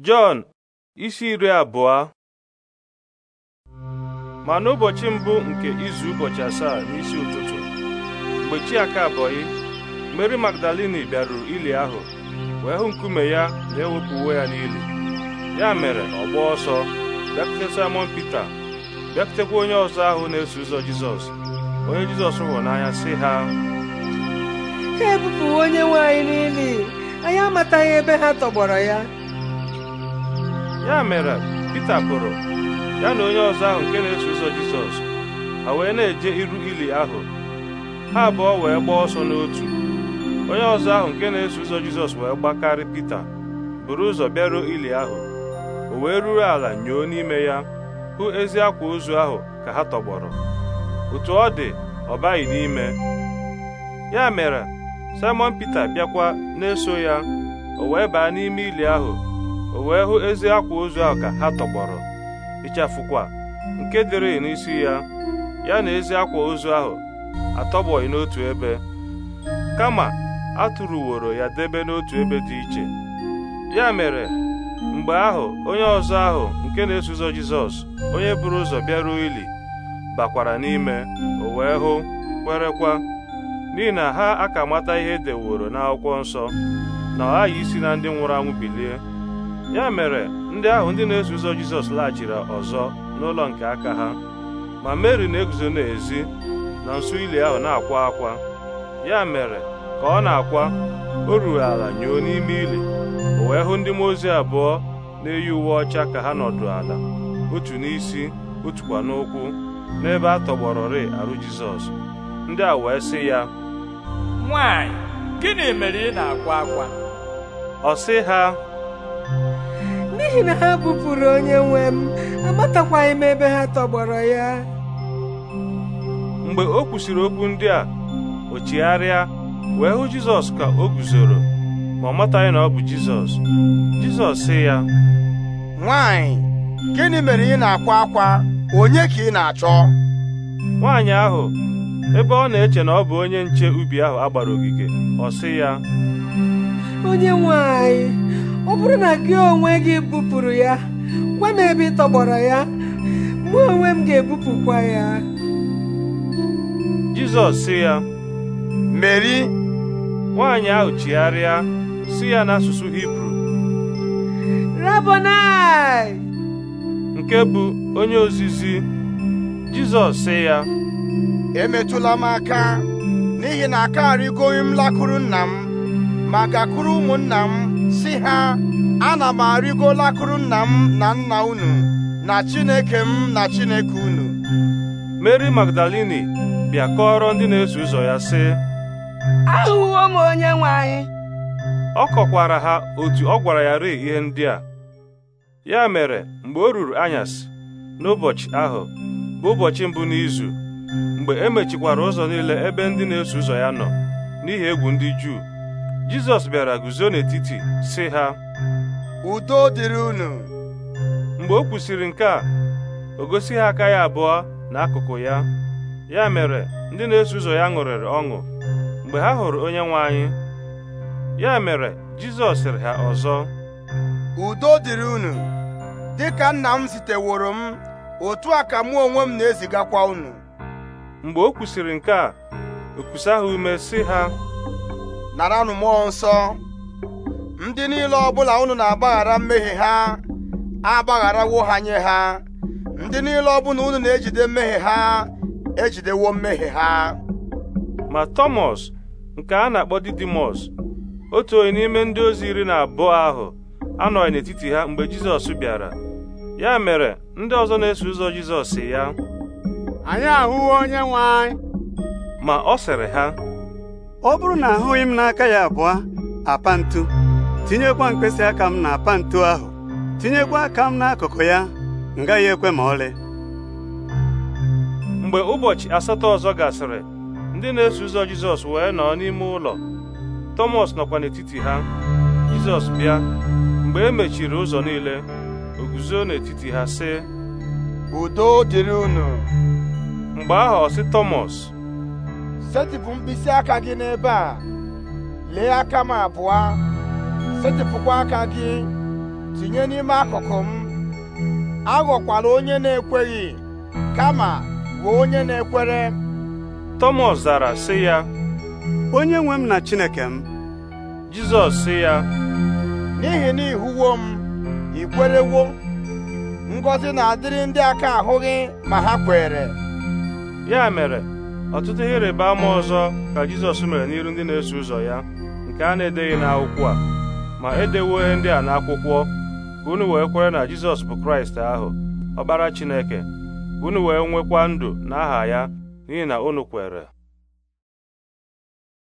Jọn isi iri abụọ ma n'ụbọchị mbụ nke izu ụbọchị asaa n'isi ụtụtụ mgbe chi aka abọghị Mary Magdalini bịaruru ili ahụ wee hụ nkume ya na-ewepụ uwe ya n'ili ya mere ọ gbaa ọsọ bịakwute Simon Pita bịakutekwa onye ọzọ ahụ na-eso ụzọ Jizọs onye Jizọs hụrụ n'anya sị ha ha e onye nwe anyị anyị amataghị ebe ha tọgbọrọ ya ya mere Pita pụrụ ya na onye ọzọ ahụ nke na-eso ụzọ Jizọs ha wee na-eje iru ili ahụ ha abụọ wee gbaa ọsọ n'otu onye ọzọ ahụ nke na-eso ụzọ Jizọs wee gbakarị Pita buru ụzọ bịaruo ili ahụ o wee ruru ala nyoo n'ime ya hụ ezi akwa ozu ahụ ka ha tọgbọrọ otu ọ dị ọ baghị n'ime ya mere Simon Pita bịakwa na-eso ya o wee baa n'ime ili ahụ o wee hụ ezi akwa ozu ahụ ka ha tọgbọrọ ịchafụkwa nke dịrị n'isi ya ya na ezi akwa ozu ahụ atọgbọghị n'otu ebe kama a ya debe n'otu ebe dị iche ya mere mgbe ahụ onye ọzọ ahụ nke na-eso Jizọs onye buru ụzọ bịaruo ili bakwara n'ime o wee hụ kwerekwa n'ihi na ha aka mata ihe edeworo n'akwụkwọ nsọ na ọ ghaghị isi na ndị nwụrụ anwụ bilie ya mere ndị ahụ ndị na-eso ụzọ Jizọs laghachiri ọzọ n'ụlọ nke aka ha ma Meri na-eguzo n'ezi na nso ili ahụ na-akwa akwa ya mere ka ọ na-akwa o ruru ala nyoo n'ime ili o wee hụ ndị mmụọ ozi abụọ na-eyi uwe ọcha ka ha nọdụ ala otu n'isi otukwa n'ụkwụ n'ebe a tọgbọrọrị arụ Jizọs ndị a wee sị ya nwanyị gịnị mere ị na-akwa akwa ọ sị ha n'ihi na ha bupụrụ onye nwe m amatakwaghị m ebe ha tọgbọrọ ya mgbe o kwusịrị okwu ndị a o chigharịa wee hụ jizọs ka o guzoro ma ọ mataghị na ọ bụ jizọs jizọs sị ya nwanyị gịnị mere ị na-akwa akwa onye ka ị na-achọ nwaanyị ahụ ebe ọ na-eche na ọ bụ onye nche ubi ahụ a ogige ọ sị ya onye nwe bụrụ na gị onwe gị bupụrụ ya gwa m ebe ị tọgbọrọ ya mụ onwe m ga-ebupụkwa ya Jizọs sị ya Meri nwaanyị ahụ chigharịa sị ya n'asụsụ Hibru Rabonai nke bụ onye ozizi Jizọs sị ya emetụla m aka n'ihi na akarịgoghị m lakụrụ nna m ma gakwuru ụmụnna m si ha ana m arịgo lakụrụ nna m na nna unu na chineke m na chineke unu meri magdalini bịa ndị na-eso ụzọ ya sị ahụwo m onye nwe anyị ọ kọkwara ha otu ọ gwara ya rịị ihe ndị a ya mere mgbe o ruru anyasị n'ụbọchị ahụ bụ ụbọchị mbụ n'izu mgbe e mechikwara ụzọ niile ebe ndị na-eso ụzọ ya nọ n'ihi egwu ndị Juu Jizọs bịara guzo n'etiti si ha udo dịrị unu mgbe o kwusịrị nke a o gosi ha aka ya abụọ n'akụkụ ya ya mere ndị na-eso ụzọ ya ṅụrịrị ọṅụ mgbe ha hụrụ onye nwe anyị ya mere Jizọs sịrị ha ọzọ udo dịrị unu dịka nna m ziteworo m otu a ka mụ onwe m na-ezigakwa unu mgbe o kwusịrị nke a o kusa ha ume si ha naranụ mmụọ nsọ ndị niile ọbụla unu na-agbaghara mmehie ha agbagharawo ha nye ha ndị niile ọbụla unu na-ejide mmehie ha ejidewo mmehie ha ma Tọmọs nke a na-akpọ Didimọs otu onye n'ime ndị ozi iri na abụọ ahụ anọghị n'etiti ha mgbe Jizọs bịara ya mere ndị ọzọ na-eso ụzọ Jizọs ya anyị ahụwo onye nwe anyị ma ọ sịrị ha ọ bụrụ na ahụghị m n'aka ya abụọ apantu tinyekwa mkpịsị aka m na apantu ahụ tinyekwa aka m n'akụkụ ya m gaghị ekwe ma ọlị mgbe ụbọchị asatọ ọzọ gasịrị ndị na-eso ụzọ Jizọs wee nọ n'ime ụlọ Tọmọs nọkwa n'etiti ha Jizọs bịa mgbe e mechiri ụzọ niile o guzo n'etiti ha sị udo dịrị unu mgbe ahụ ọ sị Tọmọs setịpụ mkpịsị aka gị n'ebe a lee aka m abụọ setịpụkwa aka gị tinye n'ime akụkụ m aghọkwala onye na-ekweghị kama bụ onye na-ekwere Thomas zara sị ya onye nwe m na Chineke m Jizọs sị ya n'ihi na ịhụwo m ikwerewo?" kwerewo ngọzi na-adịrị ndị aka ahụghị ma ha kwere ya mere ọtụtụ ihe rịba ama ọzọ ka Jizọs mere n'iru ndị na-eso ụzọ ya nke a na-edeghị n'akwụkwọ a ma edewo ihe ndị a n'akwụkwọ ka unu wee kwere na Jizọs bụ Kraịst ahụ ọbara Chineke ka unu wee nwekwa ndụ n'aha ya n'ihi na unu kwere